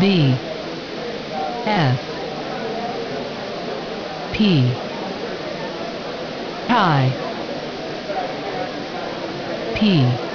B F P I P